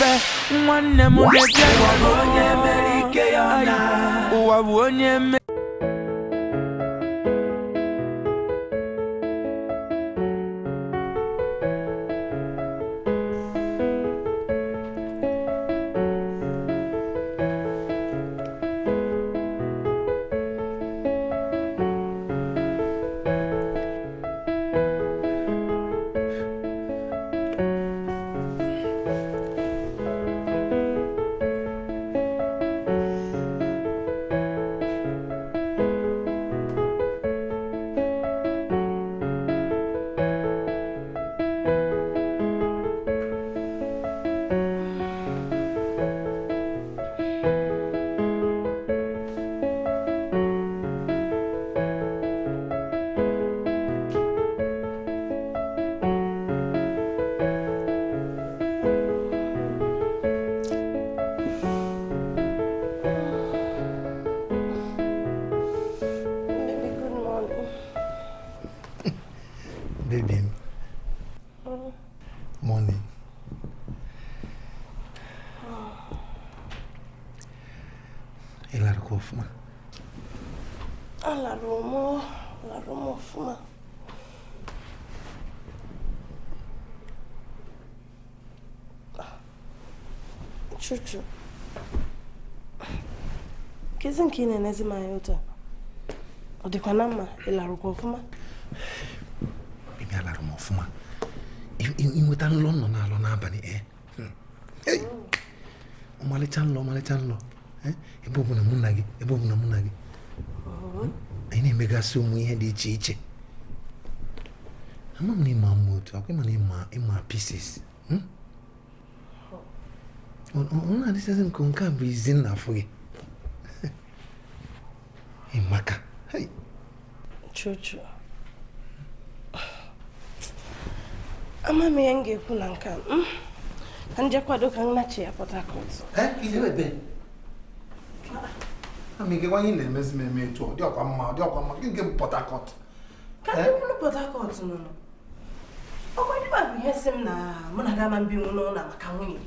nipe Mwane mune jengo Uwabonye meri ezi nke ị na-enezi m anya otu a ọ dịkwa na mma ị larụkwa ọfụma bibia lara m ọfụma inweta nlọ nọ n'alọ n'abalị ọmalịcha nlọ ọmalịcha nlọ ebe ọbụla mụ na gị ebe ọbụla mụ na gị anyị na-emegasị ụmụ ihe dị iche iche ama m na ịma mma otu akwa ịma na ịma pieces ọ na-adịchazi m nke a bụ izi nna afụ gị Emeka. Hey. Chuchu true. Ama m ihe m ga-ekwu na nke hmm? ka nje eh, kwado ka nnachi ya Port Harcourt. Eh, ihe ebe. Ama ike kwanye na-emezi m eme etu ọ dị ọkwa mma ọ dị ọkwa mma gị nke Port Harcourt. Ka ndị kwuru Port Harcourt nọ nọ. Ọkwa ndị bụ ihe si m na mụ na gị ama mbinwu n'ụlọ maka nwunye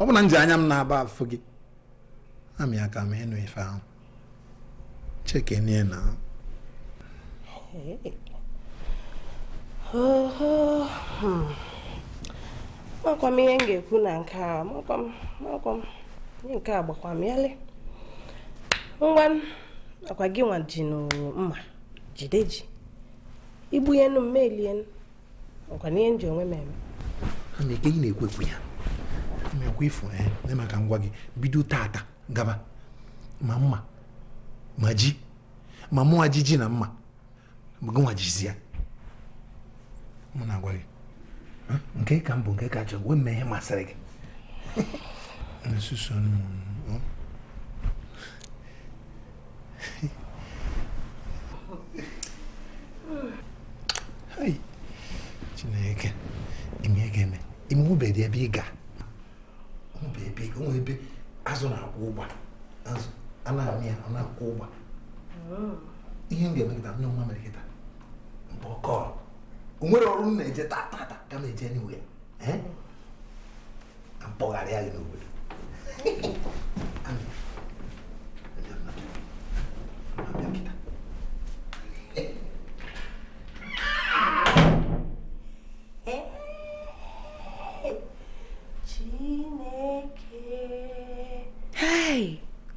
ọ bụ na nji anya m na-aba afọ gị amị aka m ịnụ ife ahụ chekenie na hmm. makwa m ihe m ga-ekwu na nke a makwa m makwa m ihe nke a gbakwa m yalị ngwa akwa gị nwa ji mma jide ji igbu ya enu m melie ọkwa n'ihe m onwe m eme ama na-ekwekwu ya mekwa ịfụ eh, na maka ngwa gị bido tata gaba ma mma ma ji ma mụwa ji ji na mma gịnwa jizi ya mụ na-agwa gị nke ka mbụ nke ka chọrọ wee mee ihe masịrị gị Chineke ime ga-eme ime ụbeghị ebe ị gaa ebe ego onwe ebe azụ na-akwụ ụgba azụ a na-amị ya oh. ọ na-akwụ ụgba ihe ndị emekịta nne nwa mere kịta mgbe ọkọ nwere ọrụ m na-eje taa taa ka eh? oh. m eje niwe ya mpọgharị ya gị n'obodo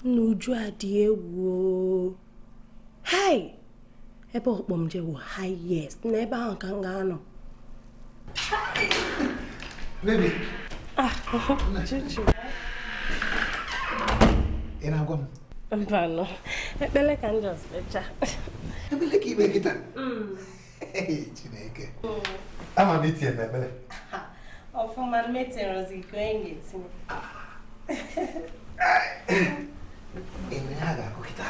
n'uju adị egwu hai ebe ọkpọ m jewo highest na ebe ahụ ka m ga-anọ ah, ị na m ekpele ka m jọs kpecha ka ikpe ka onye ga enwe ha ga-akụ kịta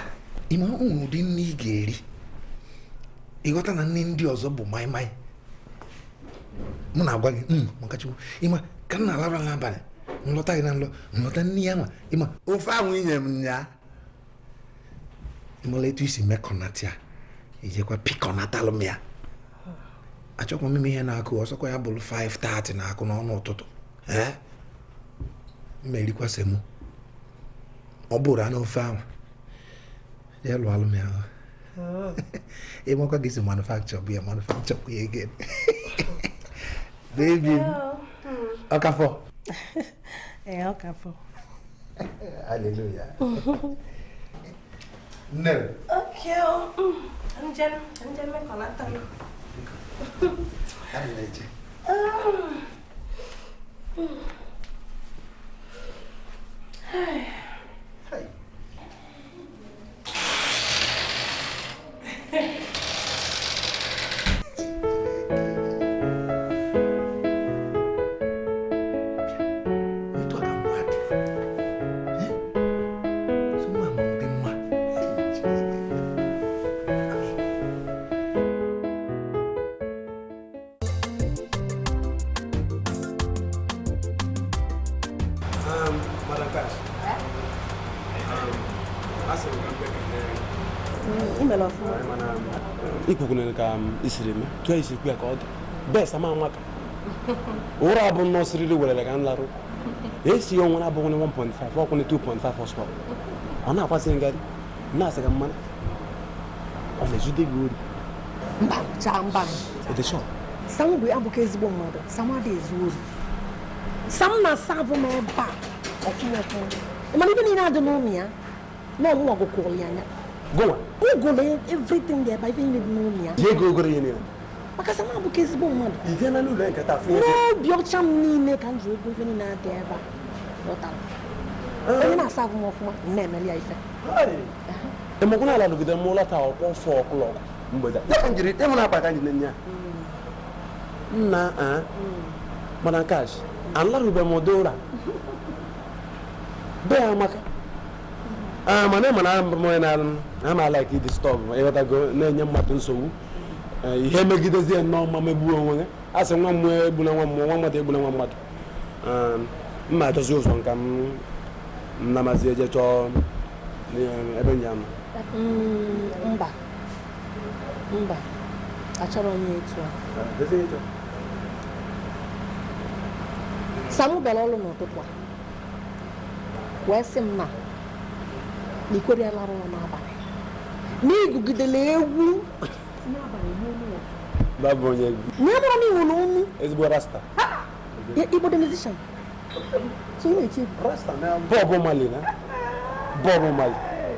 ịma ụmụ ụdị nne ị ga-eri ịghọta na nne ndị ọzọ bụ maịmaị mụ na-agwa gị hmm, maka Chukwu ịma ka m na-alabra n'abalị nlọta gị na nlọ nlọta nne ya ma ịma ofe ahụ inye m ya ịmala etu isi mekọnata ya ijekwa pikọnatalụ m ya achọkwa m ihe na-akụ ọsọkwa ya bụrụ 5:30 na-akụ n'ọnụ ụtụtụ ee mmerikwa semo ọ bụrụ anụ ofe ahụ ya lụọ alụ m ya ịmakwa gị si manufakchọ bụ ya manufakchọ bụ ya again baby ọkafọ ee ọkafọ hallelujah nne okay njem njem mekọlata m adị na-eche Gracias. ikwekwere ka um, isiri mee tụọ ya ka ọ dị bes ama amaka ụra abụ nnọọ siriri werere ka nlarụ esi ya nwere abụghị 1.5 ọkwụne 2.5 ọsọ ọ na-akwasị ngadị na-asị ka mmanụ ọ na-ejide gị ori mba abụghị ezigbo mmadụ sam ezu ori sam na-asa abụ a ibe niile adị na Goa. Google everything there, but even if no near. Yeah, Google in Maka sama bụ ka ezigbo na n'ụlọ nkata fụ ebe. N'obi ọcha m niile ka m ji ego ife niile adị ebe a. Lọtara. Onye na-asa agụ m na-emeli ya ife. Emekwu n'ala nọgide m lọta ọkpọ ọsọ ọkụlọ Ya njiri na akpata mm. njiri na a kash, mm. amaka. mana ah, ị mana na m onye na-ama like disturb ịghọtago e na-enye mmadụ nsogbu eh, ihe megidezie nnọọ mma megbuo onwe ya a sị nwa mmụọ egbula nwa mmụọ nwa mmadụ egbula nwa mmadụ ah, mma achọzi ụzọ nka m namazi eje chọọ eh, ebe nya m mm, mba mba achọrọ onye etu a ah, n'ụtụtụ a wee sị na ekwere lara ụra n'abalị n'igugidela egwu nye mara m iwu na ụmụ igbodo musician so ị na-eti Bob Marley na Bob Marley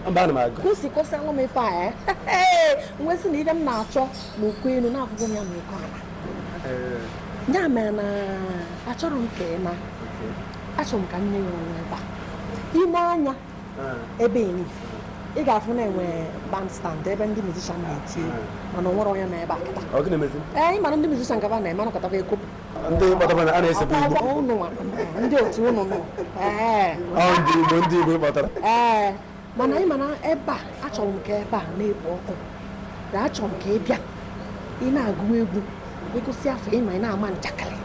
mba ana m aga kwụsị kwụsị anwụ m ife a ya nwesị na ife m na-achọ na okwu elu na-afụgo m ya na okwu ala ya mere na achọrọ m ka ị na achọrọ m ka nne ya ọrụ ebe a ime anya ebe enyi ị ga-afụ na enwe bandstand ebe ndị mizishan na-eti mana ọ nwere onye na ebe a kịta ee ịmana ndị mizishan gaba na-eme anakọtaba ego ndị otu ụnụ nọ ee mana ị mana ebe a achọrọ m ka ebe a na-ekpo ọkụ na achọrọ m ka ị bịa ị na-agụ egwu ịgụsị afọ ịma ị na-ama njakịrị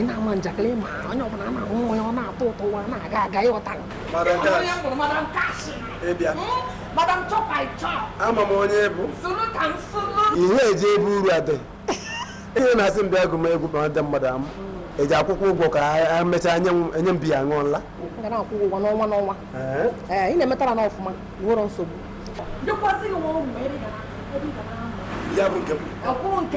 inamanjakle maonye ọbụla na nwa ọ na-atọ ụtọ ụwa na-aga aga ịghọta onye bụrụ madam kashi madam chop i chop ama m onye bụ ihe eji ebe uru adị ihe na-asị m bịa egwu ma ndị mmadụ akwụkwọ ụgwọ ka a mechaa enye m biya ṅụọla na n'ọnwa n'ọnwa ị na-emetara na ọfụma nwere nsogbu ya bụ nke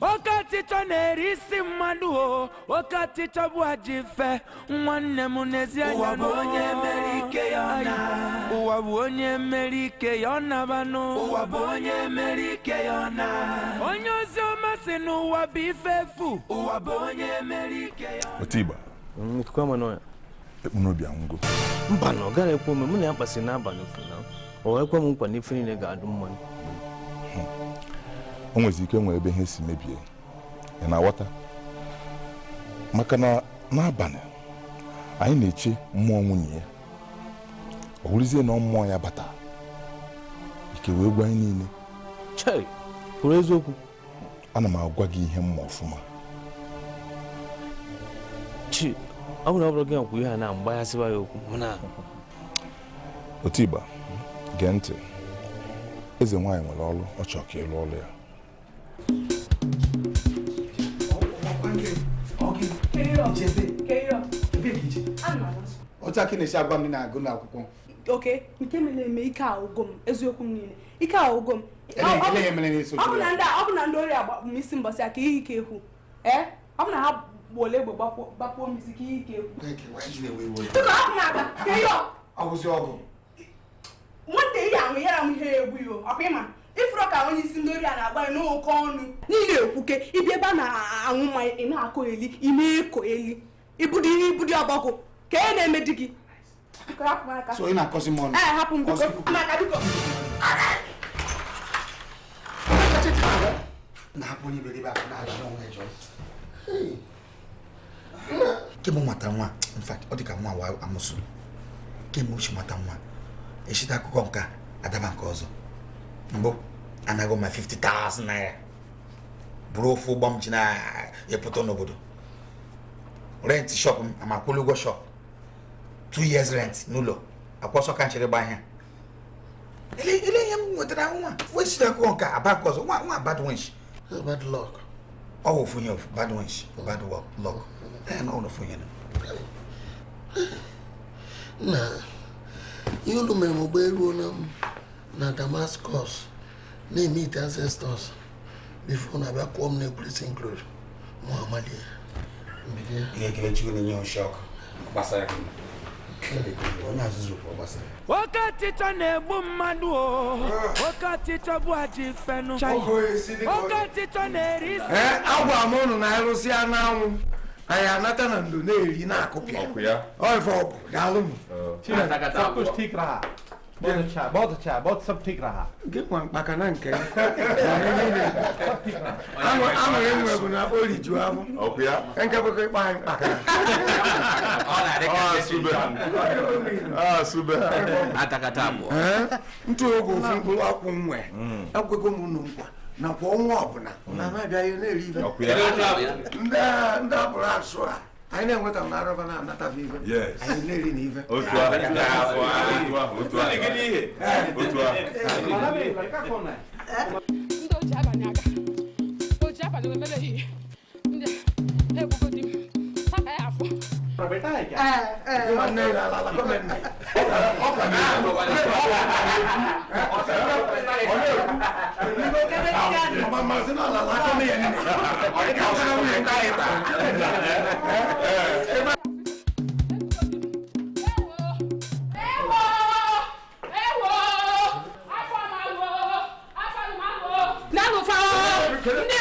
oke ọchịchọ na-eri isi mmadụ o oke ọchịchọ bụ ajọ fe, nwanne m n'ezi anya n'ụwa bụ onye mere ike ya na ụwa bụ onye mere ike ya ọ nabanụ ụwa bụ onye mere ike ya na onye ozi ọma si n'ụwa bụ ife efu ụwa bụ onye mere ike ya otigba mm, ekpu n'obi anwụgo mba na ọ gaghị ekwe ome mụ na ya kpasị n'abalị ofu na o ekwe m nkwa n'ife niile ga-adụ mmanya hmm. o nwezi ike nwee ebe ihe si mebie ị na-aghọta maka na n'abalị anyị na-eche mmụọ nwunye ya ọ bụrụzie na ọ mmụọ ya bata ike wee gwa anyị niile kwuru eziokwu ana m agwa gị ihe mma ọfụma chi ọ bụrụ gị nkwu ihe a na mgbaghasịwa ya okwu otigba gee ntị eze nwaanyị nwere ọrụ ọ chọọ ka ịlụ ọrụ ya otu aka esi agwa m na-agụ n'akwụkwọ oke nke mere eme ike ahụgo m eziokwu m niile ike ahụgo m ọ bụ na ndị ori agbapụ m isi mbọsị aka ihe ike ekwu ee ọ bụ na ha gbuola egbe gbapụọ m isi ka ihe ike ekwu nwata ihe ahụ yara m ihe ọkpa ịma ifuro ka onye isi ndị ori a na-agba n'oke ọnụ niile okwuke ịbịa ebe a na-aṅụ mmanya ị na-akọ eli ime eko eli ibudi ihe ibudi ka e na-eme di gị so ị na-akọsi m ọnụ eh, hapụ na kemgbe nwata nwa in ọ dị nwa wa amụsụ kemgbe ochi nwata nwa echite akụkọ nka adaba nke ọzọ mbo and I got my 50,000 naira. Bro, full bomb china, you put on obodo. Rent shop, I'm a Kulugo shop. Two years rent, nulo. Akwaso can't you buy him? Ele ele yam wetara nwa. Which na ko nka about cause nwa nwa bad winch. Bad luck. Oh, for bad winch, bad luck. Luck. And all of you. Na. You do me mo beru na. na Damascus na-emete ancestors bifo na abịa kụọ na ekwurịsị nklod ma na onye azụzụ kwuru gbasara nwoke na-egbu mmadụ o nwoke bụ aji fenu nwoke ọchịchọ na-eri isi agwara m ụnụ na ịrụsịa anyị anata na ndo na-eri na ya ọ ife m बहुत अच्छा बहुत अच्छा Nke nwa mkpaka na nke anụrụ enwere bụ na o rijuo afọ nke bụkọ ịkpa anyị mkpaka ah, ah, ntụ oge ofu mkpụrụ akwụ nwe ekwego hmm. m unu nkwa nakwa ọnwa ọbụla na ha abịaghị na-eri ife ndị a bụrụ asụ a I know what I'm not of, I'm not a viva. Yes. I live in Eva. Outro ar. Outro ar. Outro ar. Outro ar. Outro ar. Outro ar. proprietà è chiaro. Eh, eh, ma non è la, la, la come me. Ho capito. Ho capito. Ho capito. Ma ma se no la la come è nemmeno. Ho capito. Ho capito. Não, não fala!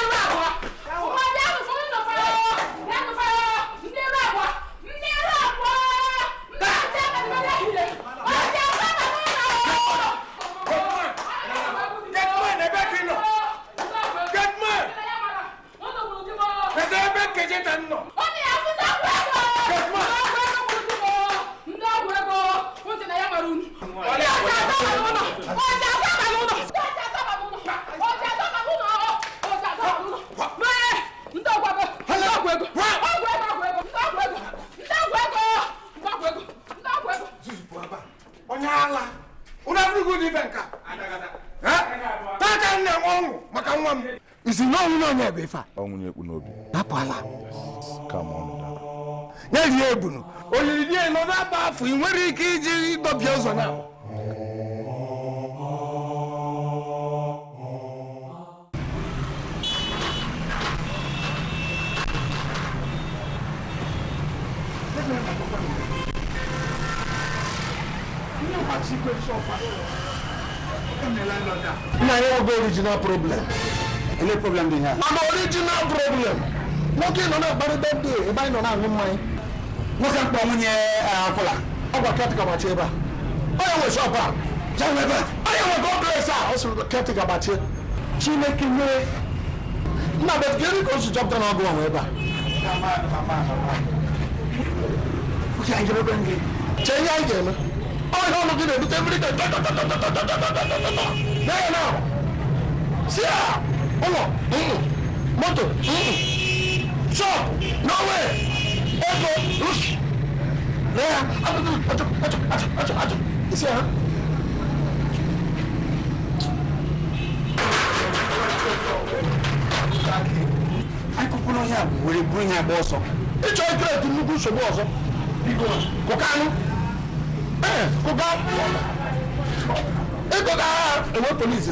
original problem. Any problem do you have? An original problem. Nwoke nọ na-akparị bedde ebe anyị nọ na-aṅụ mmanya. Nwoke mkpọ nwunye akwụla. Ọ gwa you. gbachie ebe a. Ọ ya nwe shọp a. Ya nwe I'm going to ya nwe gọdres a. Ọ sịrị ketịka gbachie. Chineke nyere. Nna you. gịnị ka o si chọpụta na ọgụ nwe ebe a? Oke anyị ga-ebe gị. Chee ihe anyị ga you. Ọ ya ọnụ gị na-ebute mmiri ka. Now you know moto, síà ọwọ́ mọ́tò ṣọ́ọ̀bù nọ́wẹ́ ẹ̀kọ́ rúṣì lẹ́yà àtúntò àtúntò àtúntò àtúntò síà. akụkụ n'ọhịa were buru ya agba ọsọ ịchọ ikret nnukwu nsogbu ọzọ kụkanụ ee kụga ịkọga agha enwe polisi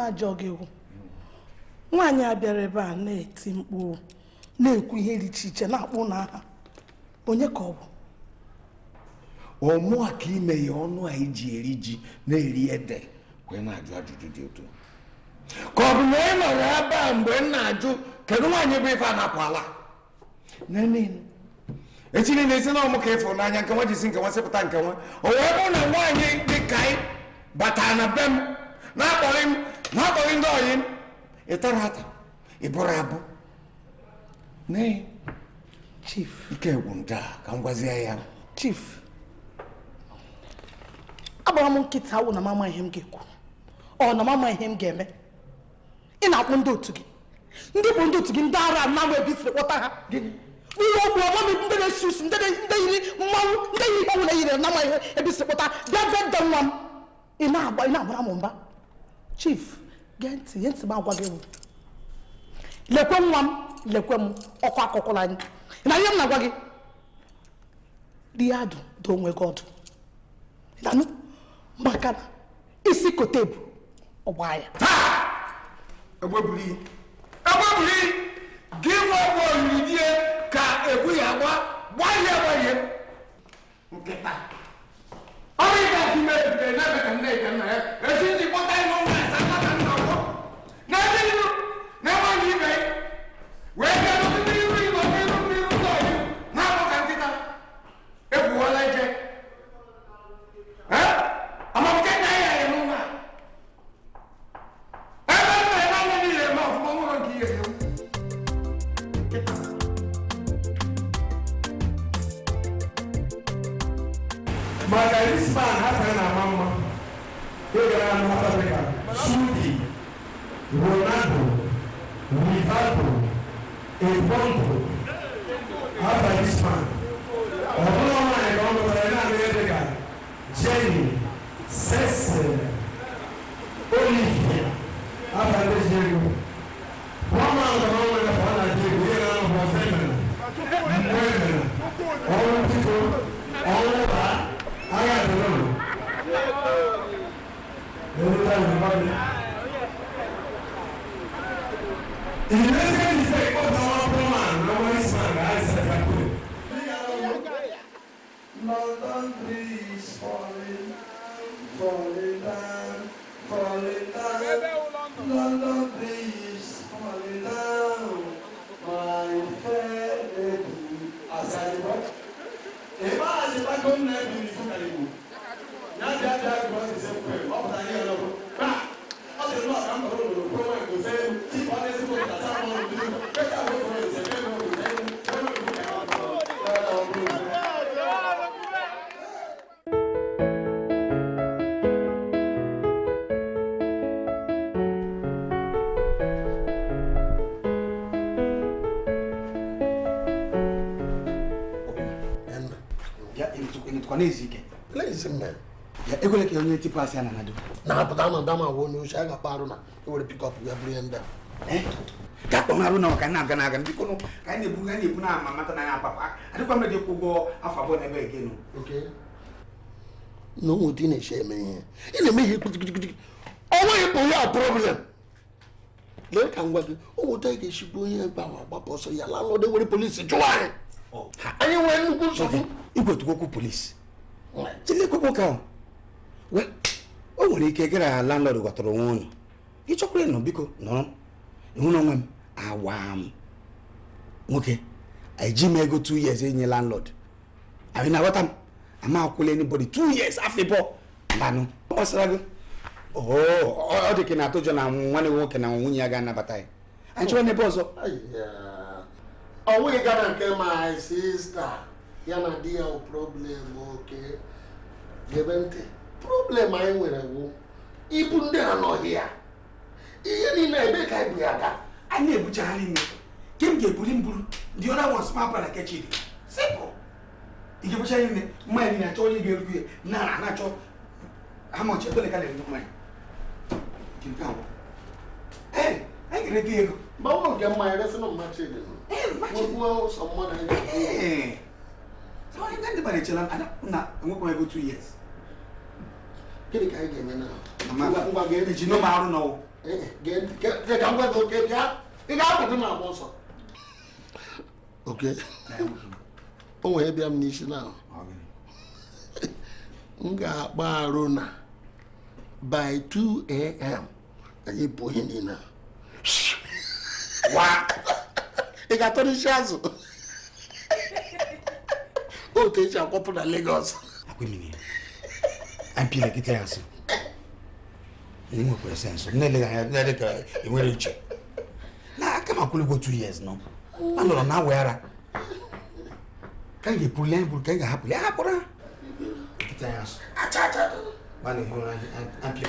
m ajọ gị nwaanyị a bịara ebe a na-eti mkpu na-ekwu ihe dị iche iche na-akpụ n'aha onye ka ọ bụ ọmụ a ka ime ya ọnụ a iji eri ji na-eri ede wee na-ajụ ajụjụ dị otu ka ọ bụ na ị nọrọ ebe a mgbe m na-ajụ kedu nwaanyị bụ ife a na-akwala echi niile isi na ọmụ ka ịfụrụ n'anya nke nwa si nke nwa sịpụta nke nwa o wee bụ na nwaanyị dị ka ị batara na be m na-akpọrị m n'akpọghị ndị ọyị ịtara ata ịbụrụ abụ nee chief ike gwụ nda ka m gwazie ya chief agbara m nkịta awụ na mama ihe m ga-ekwu ọ na mama ihe m ga-eme ị na-akpụ ndị otu gị ndị bụ ndị otu gị ndị ara anam ebi siri kpọta ha ihe okwu ọmami ndị na-esi usu ndị yiri mmanwụ ndị yiri mmanwụ na yiri nama ihe ebi siri kpọta bịa bịa nwa m ị na-agbara m mba chief gee ntị ihe ntị m agwa gị lekwe nwa m lekwe m ọkwa akụkụ na anyị na ihe m na-agwa gị ya adụ do onwe gị ọdụ ịdanụ maka na isi kote bụ ọgba ya egbebuli gị nwa ọgwụ olili die ka egwu ya agba gbalie gbalie nkịta ọrụ ịga-eme ebube na-eme ka nne ka nna ya ezi ndị kpọta ịnụ Ready? pass ya nanado na apụta na dama wo n'oche a ga-akpa arụ na ewere pikọp ya bụrụ ya ndị a ka akpọ arụ na ọka na-aga na-aga ndị kụnụ ka anyị na-ebu anyị ebu na ama mata na ya apapa adịkwa mmadụ ịkwụ ụgwọ afọ abụọ na ebe egenu na ụmụ di na-eche eme ihe ị na-eme ihe kpitikpitikpiti ọnwa ịpụ ya problem lee ka ngwa gị ụmụ di ga-echigbu onye ebe ahụ agbapụ ọsọ ya laa n'ọdụ were polisi jụọ oh. anyị anyị nwere nnukwu nsogbu igwetukokwu polisi jide kwekwo o nwere ike gara ya landlord ghọtara onwe unu ị chọkwara ịnọ biko nọrọ ihu na onwe m awa m nwoke eji m ego two years inye landlord anyị na-aghọta m ama akwụla anybody two years afọ mbanụ ọ gbasara gị ọ dị na atụjọ na nwanne nwoke na nwunye ya ga-anabata ya anyị chọrọ n'ebe ọzọ ọ nweghị gara nke my sista ya na di ya problem oke gebe ntị problem anyị nwere bụ ibu ndị a nọghị ya ihe niile ebe ka ibu ya daa anyị na-ebuchagharị ime ke m ga-ebuli m buru the other one small para kechi dị simple ike bụcha ime mmanya niile achọ onye ga-eru ya na na-achọ amọchi ebele ka na-eri mmanya ee anyị ga-erete ego mgbe ụlọ nke mmanya resịna mmachi dị n'ogbuo sọ mmadụ anyị ga-echela na enwekwa ego 2 years gịnị ka anyị ga-eme eh, eh, na agba ọsọ oke eh, o nwere bịa m n'isi na m ga-akpa arụ na by 2 a.m. anyị bụ ihe niile ị ga-atọrịsị azụ otu eji akwapụ na legos ampia na kiti yansi nilimu kwa senso nile nile nile ka imwele nche na kama kule go 2 years no ando na wera kange pulen bul kange hapo ya hapo ra kiti yansi acha acha bali hona ampia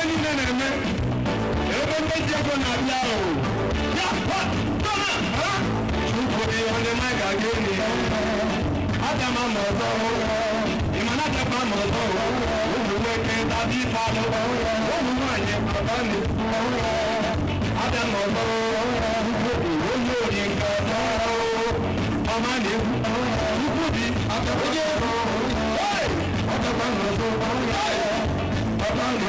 ebe niile na-eme ebe ndị ego na-abịa ahụ ya chukwuri onye na ga-aga enyi ya aga m ama ọzọ ịmana agakwa ama ọzọ ụmụ nwoke tabi ife alụ ụmụ nwaanyị baba na-ekwu aga m ọzọ onye ori nke ọzọ ọma na-ekwu ukwu bi ọgakwa ọzọ bá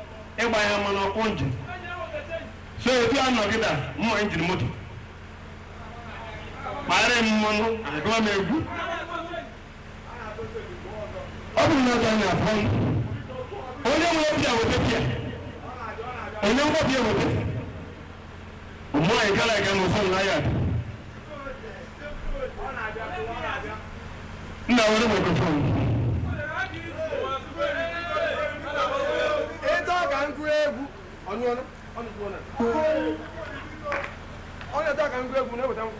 ịgba ya mmanụ ọkụ njin so etu a nọgịda mma njin moto kpara m mmanụ agụwa m egwu ọ bụrụ na ọzọ na-afọ onye nwe pịa weta pịa onye nwe pịa weta ụmụ anyị gara aga n'ụsọ na ya nna were mikrofon ọ̀nù ọ̀nù ọ̀nù tó ọ̀nà. ọ̀nà tá a kàn ń gbé egun ní ìwòtá mu.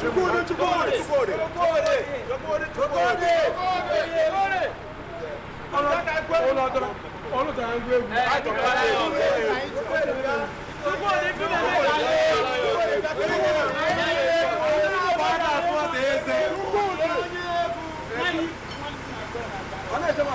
chukwudi chukwudi chukwudi chukwudi chukwudi chukwudi chukwudi. ọ̀nà tá a gbé egun ọ̀dọ́ ọ̀nà tá a gbé egun. chukwudi chukwudi. ọ̀nà ìjọba.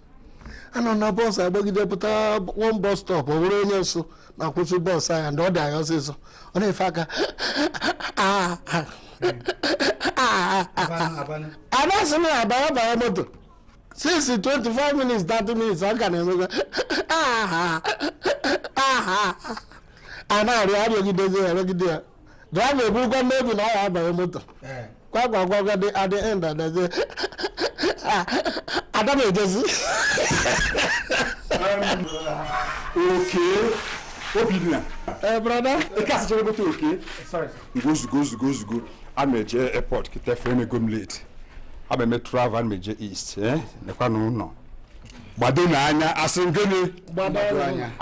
anọ na bọọsụ agbagide pụtara one bọs stop ọ bụrụ onye nso na-akwụsị bọọsụ anya ndị ọ dị anya ọsịsọ ọ na-efe aka abasị m abara bara moto since 25 minutes 30 minutes ọ ga na-emega ah, ah, ah, a na-arịọ arịọgidezi arịọgide ya gaa na-ebu mmebi na ọ ya moto eh. kwakwa kwakwa dị adị end adazi ada m ejezi oke obinna brada ike asịcha egote oke gozugo zugo zugo a e eh, e meje airport kịta fere m ego m late a ma eme travel a meje east eh? nekwa n'ụlọ gbado n'anya asị m gịnị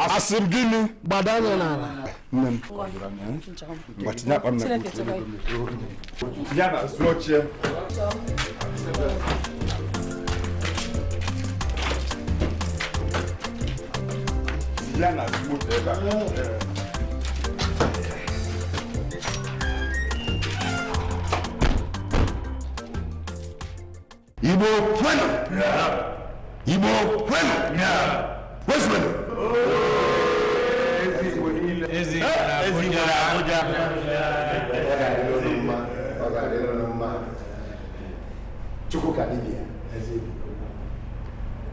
asị m gịnị gbado anya n'ala nne m gbatinye akpa na ya na Igbo, Igbo eh, chukwu ka dibịa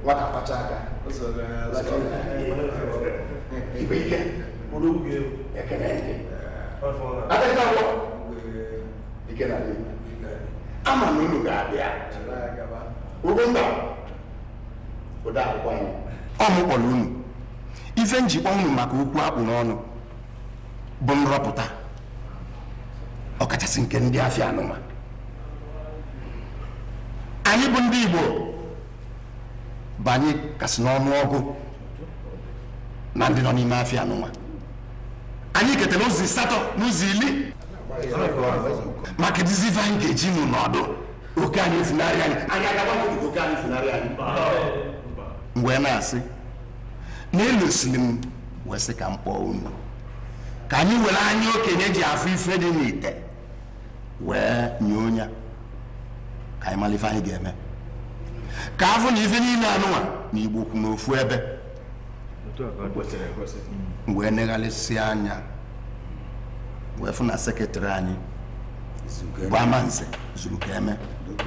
nwata kpacha aka ibe ihe ekele ndị adịghị agwọ ama na unu ga-abịa mba ọ mụ kpọrọ unu ife njikwa unu maka okwu akpụ n'ọnụ bụ nrọpụta ọkachasị nke ndị afịa anụma anyị bụ ndị Igbo anyị kasị n'ọnụ ọgụ na ndị nọ n'ime afịa anụma anyị ketara ụzọ asatọ ụzọ ili maka dizi ife anyị ga-eji nụ n'ọdụ oke anyị funarị anyị anyị oke anyị funarị anyị mgbe na-asị na elosiri m sị ka m kpọọ unu ka anyị were anya okenye ji afụ ife dị n'ite wee nye onye ka anyị mara anyị ga-eme ka afụ na ife niile anụnwa na igbo n'ofu ebe wee negharịsị anya wee fụ na sekịtịrị anyị bụ amanze zuru ka eme e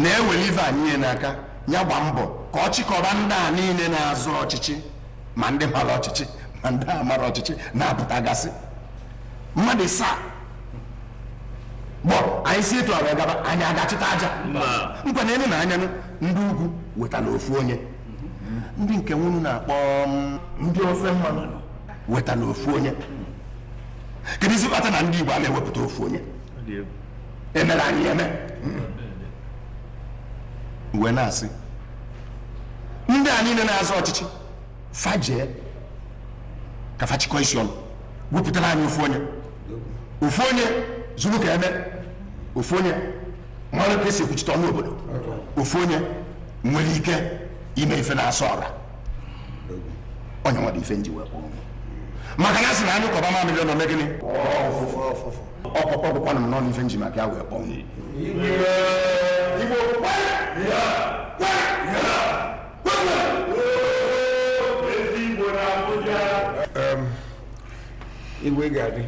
na-ewere ife anyị n'aka ya gba mbọ ka ọ chịkọba ndị a niile na-azụ ọchịchị ma ndị mara ọchịchị ma ndị a mara ọchịchị na gasị mmadụ saa gbọ anyị si etu ọrụ gaba anyị agachịta aja nkwanyere na anya ndị ugwu wetara ofu onye ndị nke nwunu na-akpọ mm, ndị ofe mmanụ wetara ofu onye kedụ isi kpata na ndị Igbo a na-ewepụta ofu onye emere e anyị eme uwe na-asị ndị a niile na-azụ ọchịchị fajee ka fachikọ isi ọnụ wepụtara anyị ofu onye ofu onye zuru ka eme ofu onye mara ka esi ekwuchite ọnụ obodo ofu onye nwere ike ime ife na-asọ ọra onye nwere dị ife nji wee kpọọ maka na sị na anyị kọba mamịrị ọ na gịnị ọkpọkpọ gwụkwanụ m n'ọnụ ife nji ma bịa wee kpọọ igwe ga-adị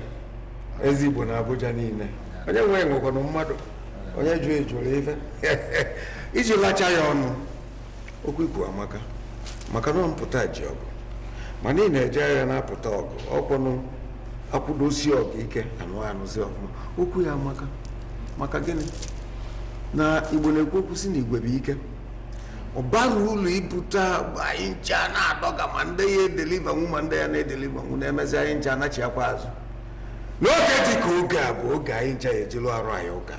ezi igbo na abuja niile onye nwee nwekwana mmadụ onye jụ ejụrụ ife iji lacha ya ọnụ okwu ikwu amaka maka na mpụta ji ọgụ ma niile eje agha na-apụta ọgụ ọkwụnụ akwụdosi ọgụ ike anụ anụzi ọfụma okwu ya amaka maka gịnị na igbo na-ekwu okwu si na igwe bụ ike ọ bara ụlọ ibute anyị ncha na-adọga ma ndị ya nwụ ma ndị ya na nwụ na-emezi anyị ncha anachiakwa azụ n'oge dị ka oge a bụ oge anyị ncha ya ejelu arụ anyị ụka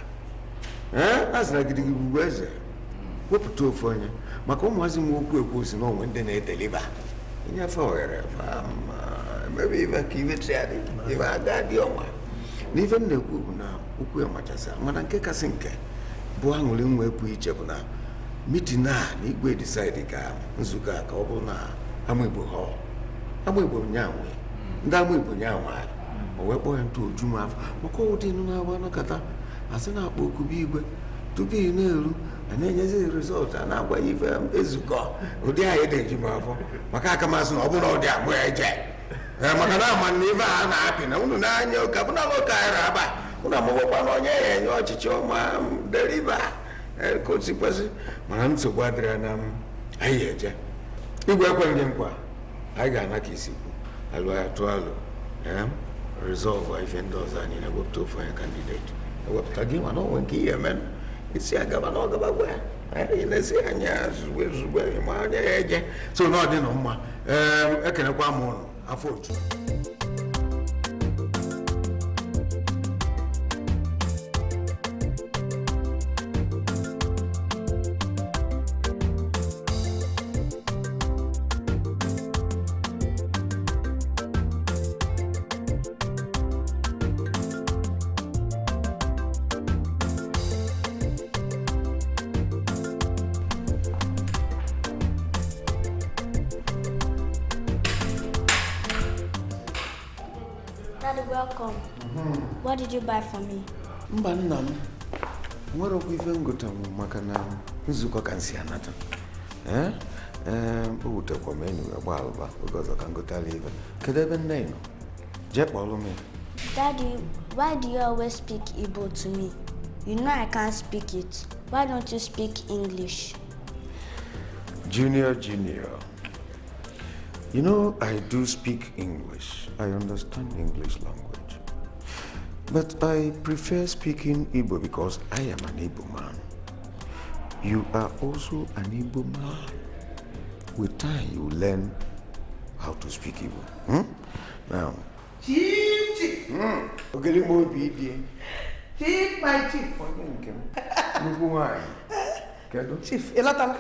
a sịra gidigigbu eze wepụta ofu onye maka ụmụazị m okwu ekwu si na onwe ndị na-edeliva nyefe ohere na ife m na-ekwu bụ na okwu ya machasị mana nke kasị nke bụ aṅụrị nwa pụ iche bụ na mitin a na igwe disaidi ka nzukọ a ka ọ bụrụ na ama igbo ha ama igbo nyanwe ndị ama igbo nyanwe anyị o wee kpọọ ya ntụ oju m afọ maka ụdị nụ na-agba nakọta asị na-akpọ okubi igwe tupu ị na-eru a na-enyezi rizọltụ a na-agwa ife ezukọ ụdị anyị dị m afọ maka akamasị na ọ bụla ụdị amụ eje maka na ama na ife a na-apị na unu na-anya ụka bụna ụka anyị aba ụna amụbakwa na onye ya enye ọchịchị ọma deriva e, kosikwesị mana nsogbu adịrịa na anyị eje igwe ekweghị nkwa anyị ga-ana ka isikwu alụgha atụ alụ rizọlvụ ife ndị ọzọ anyị na-ewepụta ofu onye kandideti ewepụta gị mana onwe nke ihe menụ isi agaba na ọgaba gwa ya na-esi anya zugbe zugbe ma anya ya eje so na ọ dị na mma ekenekwa m ụnụ afọ ojuju What did you buy for me? Daddy, why do you always speak Igbo to me? You know I can't speak it. Why don't you speak English? Junior, Junior. You know, I do speak English. I understand English language. But I prefer speaking Igbo because I am an Igbo man. You are also an Igbo man. With time, you learn how to speak Igbo. Hmm? Now. Chief, chief. Mm. Chief, my chief. do Chief, No, elatala.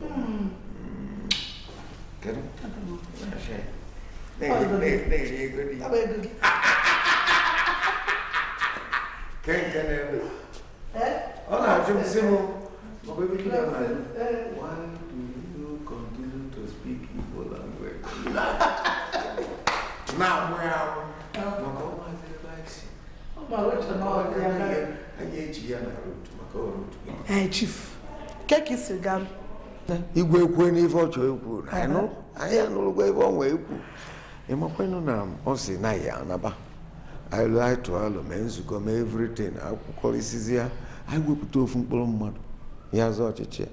Hmm. Kedu? Kedu? Nem, Olha, nem, nem ligo, nem. Tá bem, Quem quer ler? É, é? Olha lá, eu Simon. Uma coisa que não mais. Why do you continue to speak evil language? Now, o que we? Makao mazele baixi. Maroto na hora. Ayechi ya maroto. Makao roto. É, Chief. É, quer que isso, Galo? Né? Igwe eu n'ife ọ chọrọ ikwu anyị anụlụgo ebe ọ nwee ikwu ịmakwenu na ọ sị na ya anaba aịlụ anyị tụọ alụ mee nzukọ mee evritin akwụkọrịsịzi ya anyị wepụta ofu mkpụrụ mmadụ ya zọọ ọchịchị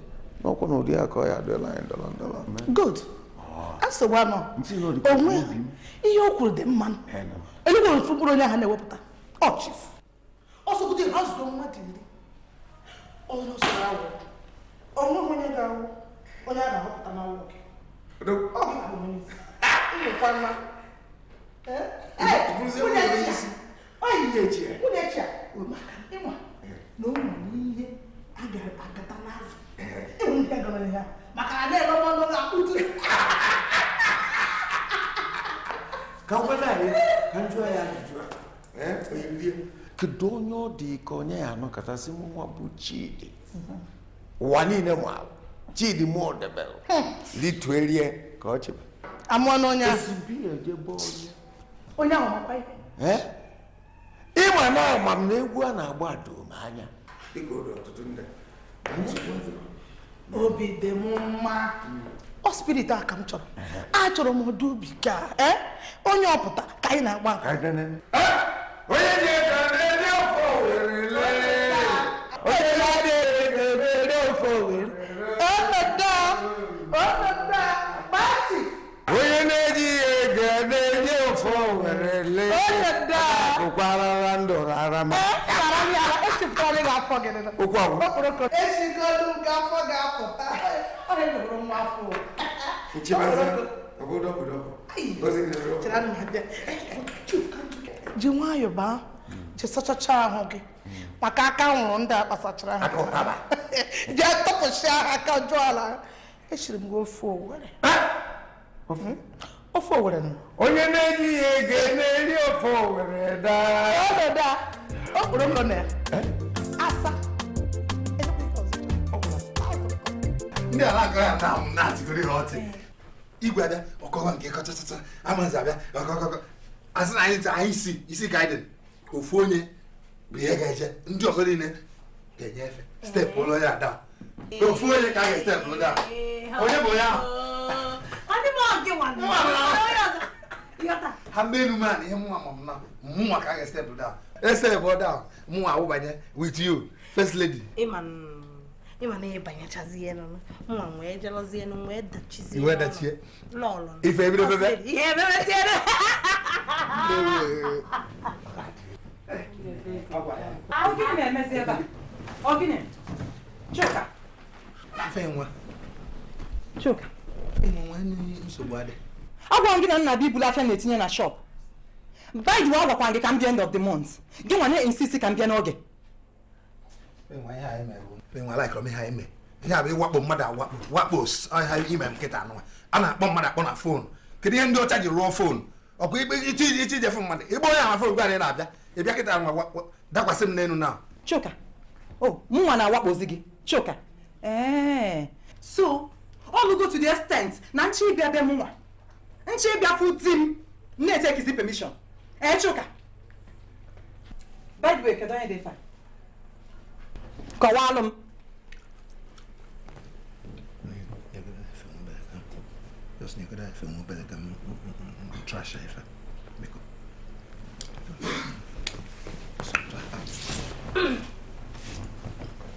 n'ọkwa na ụdị akọ ya adịla anyị ndọrọ ndọrọ good ah. asịkwanụ onwe ihe o kwuru dị mma elugo ofu mkpụrụ onye ahụ na-ewepụta ọchif ọsọgide ha zụrụ mmadụ iri onye ọsọrọ awụ onwe onye ga-awụ onye a na-ahọpụta n'ọnwụ gị ọ gị ka onye ụmụkwanna unechi maka ịnwa na ụmụ n'ihe agata n'azụ ịhụ ihe gara ya maka na na-ere ọnụ na akpụtu ka nkwada anyị ka njụọ ya ajụjụ kedu onye ọ dị ka onye ya anọkọtasị m nwa bụ chidi ụwa niile ma chidi mụọ debere lituerie ka ọ chebe amụọ n'onye ezigbo ejebe onye onye ahụ makwa ihe ịma na ama m na egwu a na-agba doo m anya obi dị m mma ọ spirit a ka m chọrọ achọrọ m ọdụ ubi ka onye ọpụta ka anyị na-agba onye karama. ee karama yala esi fọlị ga-afọ gị nịla. okwu agwụ. okporoko. esi golu gafọ gafọ ọ na-egboro nwa afọ. nchibazi obodo obodo. ozi gị n'obodo. chere anụ abịa ji nwayọọ baa ji sachachaa ahụ gị maka aka nwụrụ ndị a kpasachara ha. aka ụtaba. ji atọpụsịa aka jụọ ala. esiri m gị ofe owere. ofe. ofe owere nọ onye na-eri ya ego na-eri ofe owere daa okporo ụlọ na ya eh? asa ndị ala agaghị ata ahụ na-atịgoro ha ọtị igwe abịa ọkọwa nke kọchachata amazi abịa ọkọkọkọ asị na anyị anyị isi isi ka ofu onye bụ ihe ga-eje ndị ọzọ niile ga-enye efe steepụ ụlọ ya ada ofu onye ka a ga-estepụ ụlọ onye bụ onye ahụ ha mgbe elu man ihe mụnwa ma mma mụnwa ka a ga-estepụ down estepụ down mụnwa awụbanye with you first lady ịma e e na ihe banyechazie nụ mụnwa nwee jelozie nụ nwee dachizie e nwee ife ebire Chuka Chuka agwara m gị na nna bibulu afịa na-etinye na shop by the way gị ka m bịa end of the month gị nwa na-insist ka m bịa n'oge ihe a bụ ịwakpo mmadụ awakpo wakpo ime nkịta anụnwa a na-akpọ mmadụ akpọ na foonu kedu ihe ndị ọcha ji rụọ foonu ọkwa ikpe ije fụ mmadụ ịgba onye oh, ama foonu gwa anyị na-abịa ịbịa kịta nwa dakwasị m n'elu na choka o mụnwa na-awakpozi gị choka ee eh. so All go to the extent na nchi ịbịa be mụnwa nchi ịbịa fu di m take etekizi permission ee eh, chuka by the way kedu onye dị fa kọwaalụ m Jos nie grałem filmu, będę tam trasza ife. Miko.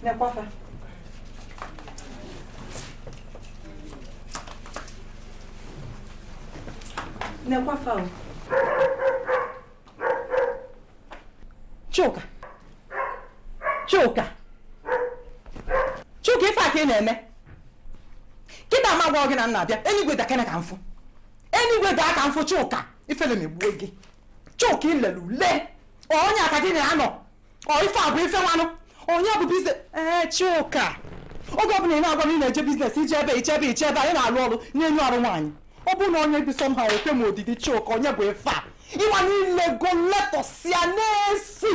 Nie, kwafa. na-ekwafe ahụ Chuka Chuka Chuka ife aka ị na-eme kịta ama gwa gị na nna abịa enigwe dakene ka mfụ enigwe daa ka mfụ Chuka ife na-egbuo gị Chuka ilele ule onye aka gị na-anọ ọ ife abụ ife nwanụ onye bụ biznes ee Chuka oge ọbụla ị na-agwa na ị na-eje biznes ije ebe iche ebe iche ebe anyị na-alụ ọrụ na-enye ọrụ nwaanyị ọ bụrụ na onye dị somehow ekwe m odidi chika onye bụ ife a ịgba niile go letọsịa na-esi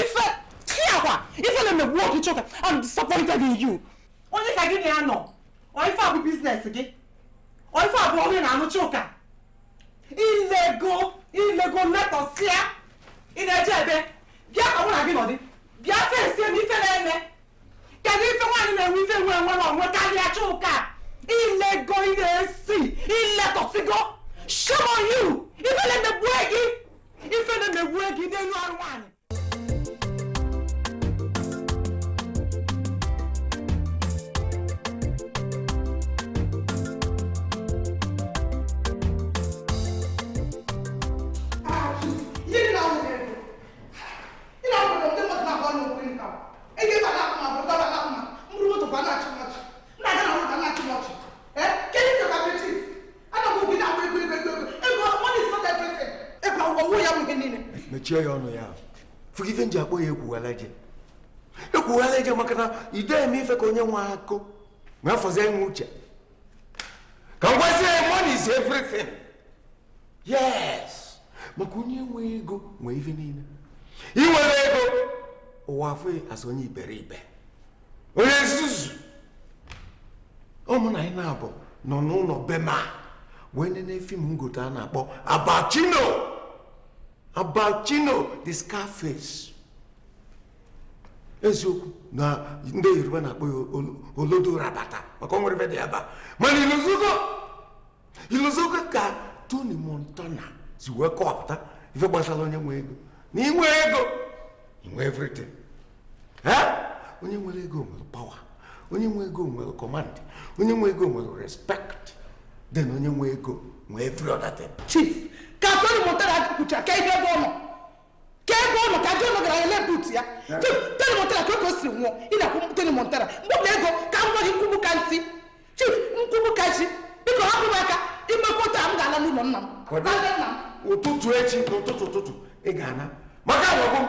ife tiakwa ife na-emegbu oge chika I'm disappointed in you onye ka gị na-anọ ọ ife a bụ biznes gị ọ ife a bụ onye na-anụ chika ilego ilego letọsịa ị na-eje ebe bịa ka mụ na gị nọdị bịa fesie m ife na-eme kedu ife nwaanyị na-enwe ife nwe enwe na onwe karịa chika on you ife na mmegbu gị ife na mmegbu know i ọrụ one. mechie ya ọnụ ya fụgife nji akpọ ya ekwughala eje ekwughala eje maka na ide eme ife ka onye nwe akụ ma afọzie nwe uche ka m gwazie ya is everything yes maka onye nwe ego nwee ife niile inwere ego ụwa afụghị asị onye iberibe onye nzuzu ụmụ na anyị na-abụ nọ n'ụlọ bema wee nene fim ngote a na-akpọ abachino about Chino the Scarface eziokwu na ndị Yoruba na-akpọ ya olodo rabata maka onwere ebe dị aba. a mana iluzugo iluzugo ka Tony Montana si wee kọwapụta ife gbasara onye nwe ego na inwe ego inwe everything onye nwere ego nwere pawa onye nwe ego nwere command onye nwe ego nwere respekt then onye nwe ego nwa free other thing. chief ka tony motara kwuchara ka ebe ebe ọ nọ ka ebe ọ nọ ka john gara ele but ya eh. chief tony motara ka oge o siri nwụọ ị na-akwụ tony motara mgbe ego ka m gwa gị ka nsị chief nkwubu ka chi biko hapụ m aka imekọta m ga-ala n'ụlọ nna m ụtụtụ echi n'ụtụtụ ụtụtụ ị ga-ana maka agwagwo m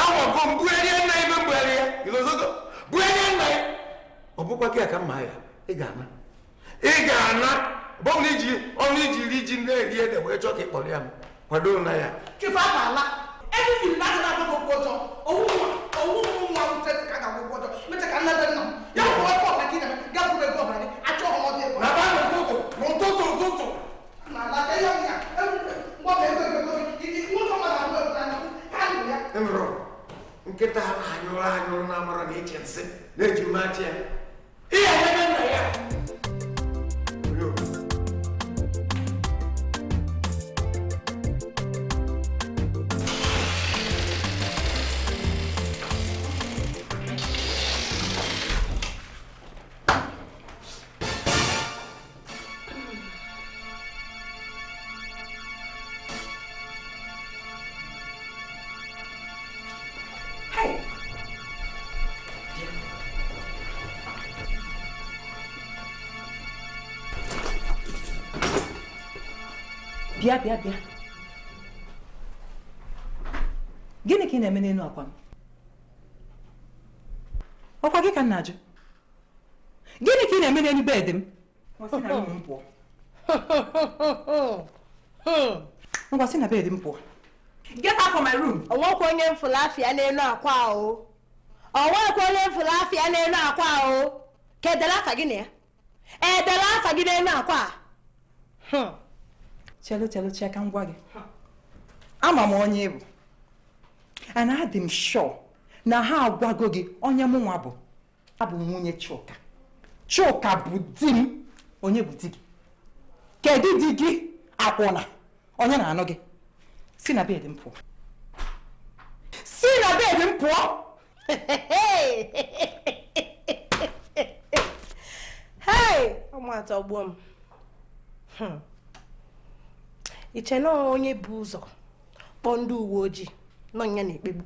agwagwo m bugharịa nna ime mgbegharị ya igozogo bugharịa nna ya ọ bụkwa gị ka mma ya ị ga-ana ị ga-ana bowliji only riji nne rie da wee chọọ ka e ịkpọrọ ya m kwado na ya chịfa ala everything na adịghị agụ akwụkwọ ọjọọ owu nwa nwute ka ga akwụkwọ ọjọọ mecha ka nne dị nna m ya bụ ọkụ ọbụla gị na ga bụrụ ego ọbụla gị achọ ọmọdụ ego na ba na ụtụtụ na ụtụtụ ụtụtụ na ala ka ya ya mgbọba ego ego nwoke ọma na mmadụ na ha nụ ya ịmụrụ nkịta ha anyụrụ anyụrụ na amara na eche nsị na-eji mmachi ya ihe ebe nna ya bịa bịa gịnị ka ị na-eme n'elu akwa m ọkwa gị ka m na-ajụ gịnị ka ị na-eme n'elu bedị m ngwa sị na bedị m pụọ get out from my room ọnwekwa onye mfụlafịa n'elu akwa o ọnwekwa onye mfụlafịa n'elu akwa o ka edere afa gị na ya edela afa gị n'elu akwa a chelu chelu chee ka ngwa gị ama m onye ịbụ and adị m sure na ha agwago gị onye mụ nwa bụ abụ nwunye Chuka Chuka bụ di m onye bụ di gị kedu di gị akwụna onye na-anụ gị si na bed m pụọ si na bed m pụọ hei ọmụatọ gbuo m hmm. iche na onye bụ ụzọ kpọọ ndị uwe ojii nọ ya na-ekpegbu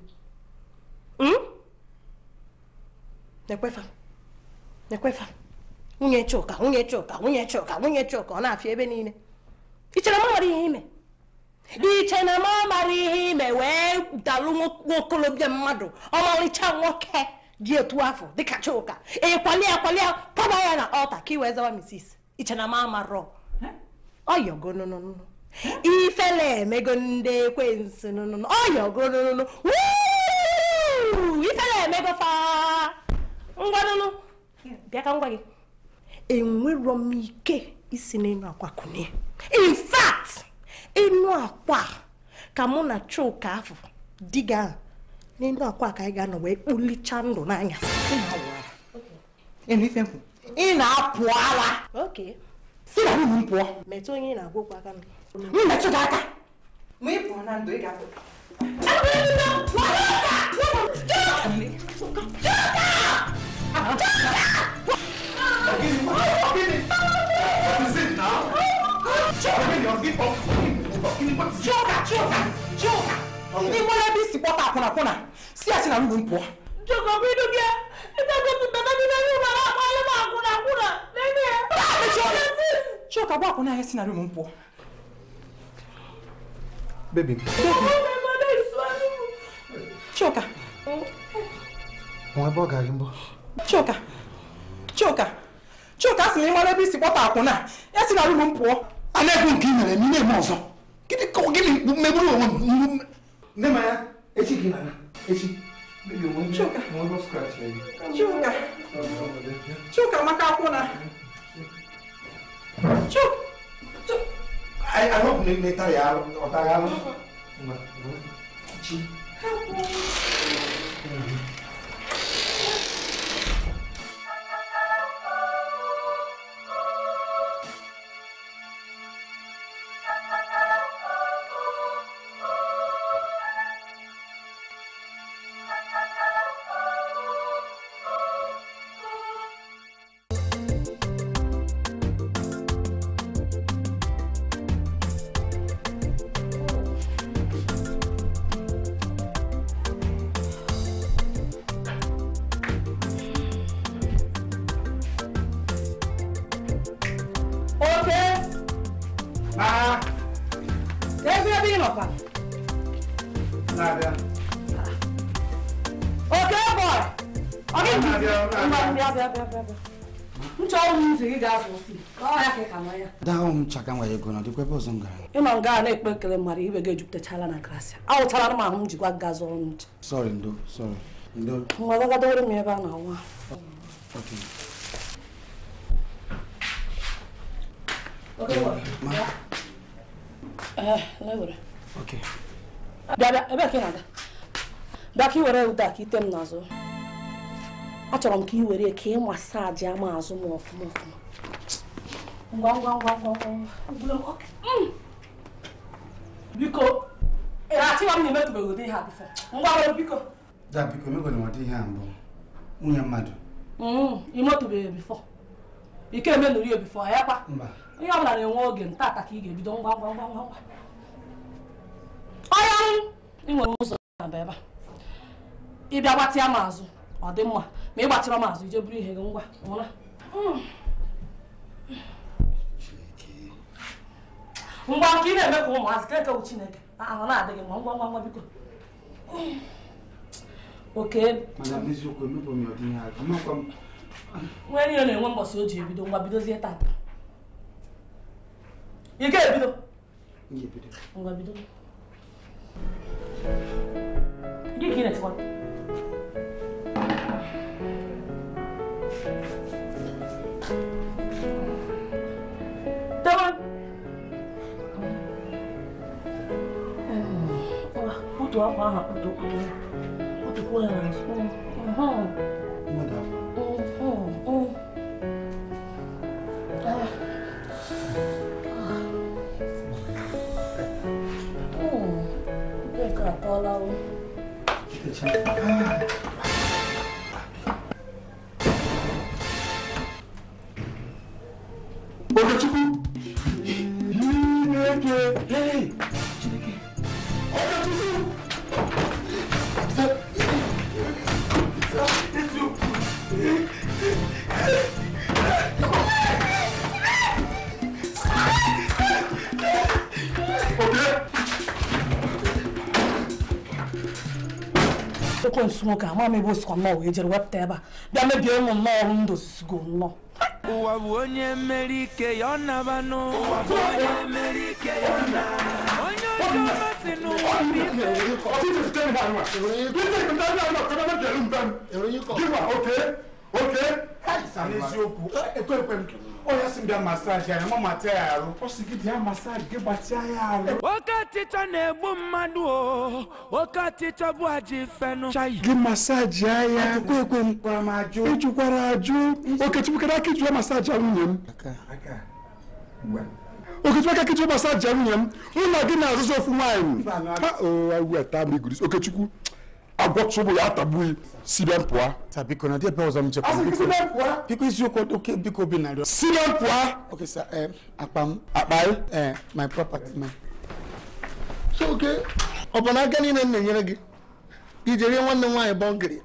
hmm? na-ekwefa na-ekwefa nwunye Chuka nwunye Chuka nwunye Chuka nwunye Chuka ọ na-afịa ebe niile iche na m nwere ihe ime iche na m amara ihe ime wee dalụ nwokolobịa mmadụ ọmarịcha nwoke dị otu afọ dịka Chuka ịkwali e ya kpọba ya na ọta ka iwee zawa misis iche na m amarọ ọyọgo nonono ifele emego ndị ekwensu ọyọgonunu ifele emego fa ngwanụnụ bịa ka ngwa gị enwerọ m ike isi n'ịnụ akwa kụnye in ịnụ akwa ka mụ na chuka afọ diga n'ịnụ akwa ka anyị ga-anọ wee kpulicha ndụ n'anya ị na-apụ ara si na nwunye m pụọ metụ onye ị na-agwa okwu aka m mmetụ gị aka ma ị pụọ na ndụ ị ga-apụ ịgbara ebe isi kpọta akwụnakwụna si ya si na ndụ m pụọ jogobidu gị chioka bụ akwụna ya si na rum m pụọ baby. Choka. Wọ́n bọ́ gàrí ń bọ́. Choka. Choka. Choka si mi mọ́ lẹ́bí sí pọ́tà àkùnà. Ẹ sì rà lóru ń pọ̀. Alẹ́kùn nkì mẹ̀rẹ̀ ní ilé mọ̀ ọ̀sán. Kíni kọ́ kí me mẹ́gbúrú o nínú. Nema ya, echi kì í nana, echi. Bébí òun jẹ́ wọ́n lọ scratch lẹ́yìn. Choka. Choka maka àkùnà. Choka. Choka. Ay, eu kung may, may tayalo? O tayalo? ị nọkwa ah. oke bọị ọ gị ịnọ nga a na-ekpe ekele mmadụ ibe gị ejupụtachala na grasịa awụtara m ahụ m jikwa gaa zụrụ ncha nwa gagadowere m ebe a na-anwa Okay, what? bịa eh, bịa ebe ka ị na-aga bịa ka ị were ụda ka ite m n'azụ achọrọ m ka ị were ka ị masaji ama azụ m ọfụma ọfụma ngwa ngwa ngwa ngwa mm. biko achịwa m na emetụbeghị ụdị ihe ngwa ngwa ngwa ngwa biko da biko emegwere ụdị ihe ngwa mbụ nwunye mmadụ imetụbeghị mm, ngwa ike ngwa ngwa ngwa ya kwa mba ihe ọ bụla na-enwe oge ntaaka ka ị ga-ebido ngwa ngwa ngwa ngwa ọya ị nwere ụzọ ebe a ịbịa gbatịa m azụ ọ dị mma ma ị gbatịrọ m azụ ije buru ihe gị ngwa ụra ngwa nke ị na-eme ka ụmụazị ka ekewu chineke ah, ahụ na-adịghị mma ngwa ngwa ngwa biko nwere ihe na-enwe mbọsị o ji ebido ngwa bidozie tata ị ga-ebido ngwa bido gị ka ị na-etikwa Dawan. Otu akwa ahụ akpụtụ ụkwụ ya. Otu kwụ ya na nsọ. Ah. nwoke ama m ebe o sikwa nnọọ wee jere wepụta ebe a bịa mebie ụmụ nnọọ ọrụ ndụ ozizgo nnọọ ụwa bụ onye mmeri ike ya ọ naba n'ụwa bụ onye mmeri ike ya ọ na onye ọjọọ masị n'ụwa bụ ife Okay. Okay. N'eziokwu ekwe eh, eh, ekwe m oyasim da massage ya mama ta yaro o sigi da massage ge bati yaro wakati ta na egbu mmadụ o wakati ta bụ aji fenu chai ge massage ya ya ekwe ekwe m gwara m ajụ ịjụkwara ajụ okechukwu aka ịjụwa massage ya nwunye m okechukwu aka ịjụwa massage ya nwunye m ụlọ gị na-azụzụ ofu nwaanyị okechukwu agwọchụbụ ya atagbughị sibe mpụa biko na ebe ọzọ m jekwa biko eziokwu oke biko bi narị sibe mpụa okay sir eh, akpa m akpa eh, my property man so oke ọ bụ na aka niile m na-enyere gị ije rie nwanne nwaanyị bọngịrị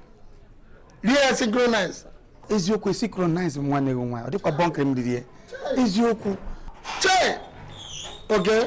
rie ya synchronize eziokwu synchronize m nwanne gị nwaanyị ọ dịkwa bọngịrị m ririe eziokwu chee oge okay.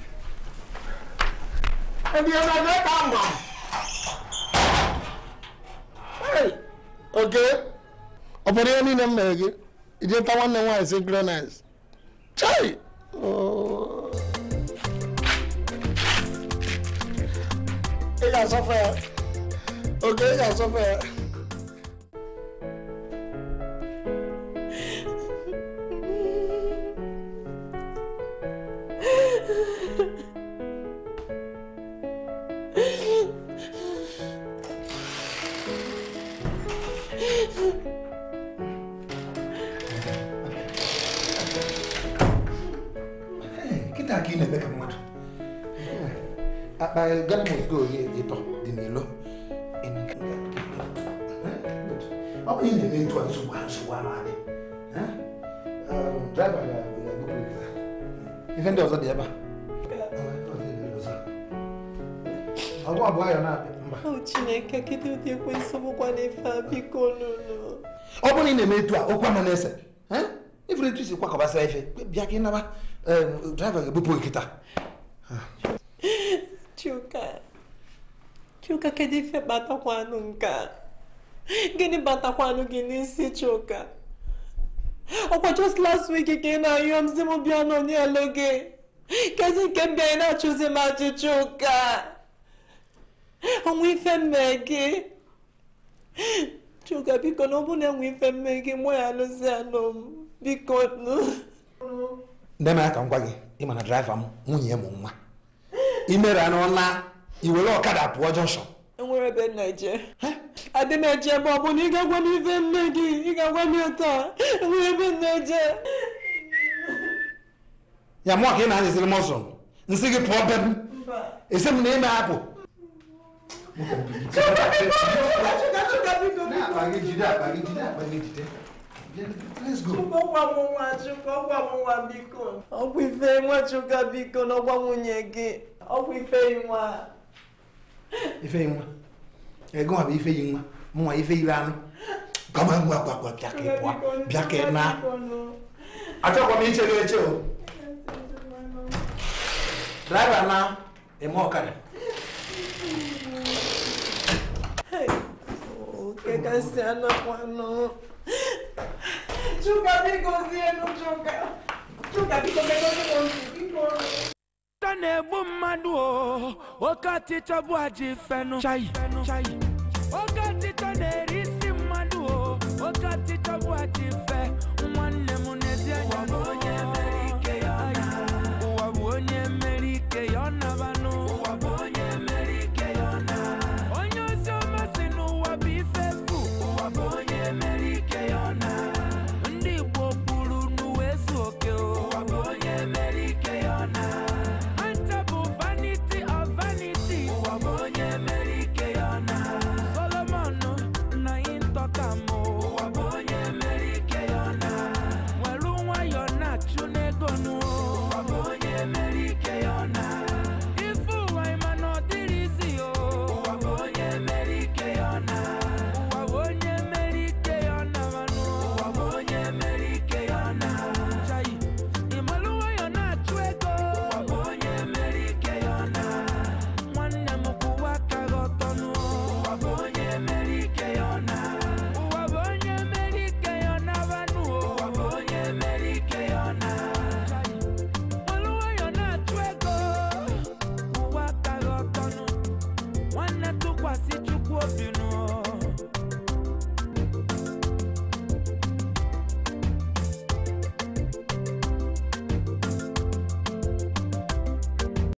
ẹni ẹni ẹni ẹka wà. oke obodo ya niile m mere gị ije ta nwanne m nwaanyị si gronis chai ị ga-asọfe ya oke ị ga weil Gatmos go ịtọ dị n'ilo ọ bụ ị na-eme etu a nsogbu ha adị driver ga ife ndị ọzọ dị ebe a ọgwụ na-abịa chineke kedu ụdị ekwensị bụkwa n'ife a biko ọ na ị na-eme etu a okwu ama na-ese ifere etu ife bịa ka naba ga-ebupụ Chuka kedu ife kpatakwanụ nke a gịnị batakwanụ gị n'isi Chuka ọkwa just last week ka ị na-ayọ m si m bịa n'onyelu gị kezi nke m bịa na-achụzi m ajụjụ chuka ọnwa ife mme gị Chuka biko na ọ bụ na enwe ife mme gị mụ ya alụzi anụ m biko nne m ya ka m gwa gị ịma na draiva m nwunye m nwa imere n'ọla iwere ọkada pụọ jọnshọn enwere ebe nna je adị m eje ọ bụ na ị ga-agwa m ife nne gị ị ga-agwa m enwere ebe nna je ya mụọ ka ị na-anyịziri m ọsọ nsị gị pụọ be m esi m na ime apụ ọgwụ ife nwachukwu biko nwunye gị ọgwụ ife nwa ife nwa ego ọ bụ ife yi nwa mụnwa ife ire anụ gaba ngwa gwagwa bịa ka ịpụa bịa ka ịna m o na eme ọkara. Chuka biko zie nu Chuka Chuka biko na-egbu mmadụ oke ọtịchọ bụ aji fenu oke ọtịchọ na-eri isi mmadụ oke ọtịchọ bụ aji fe nwanne m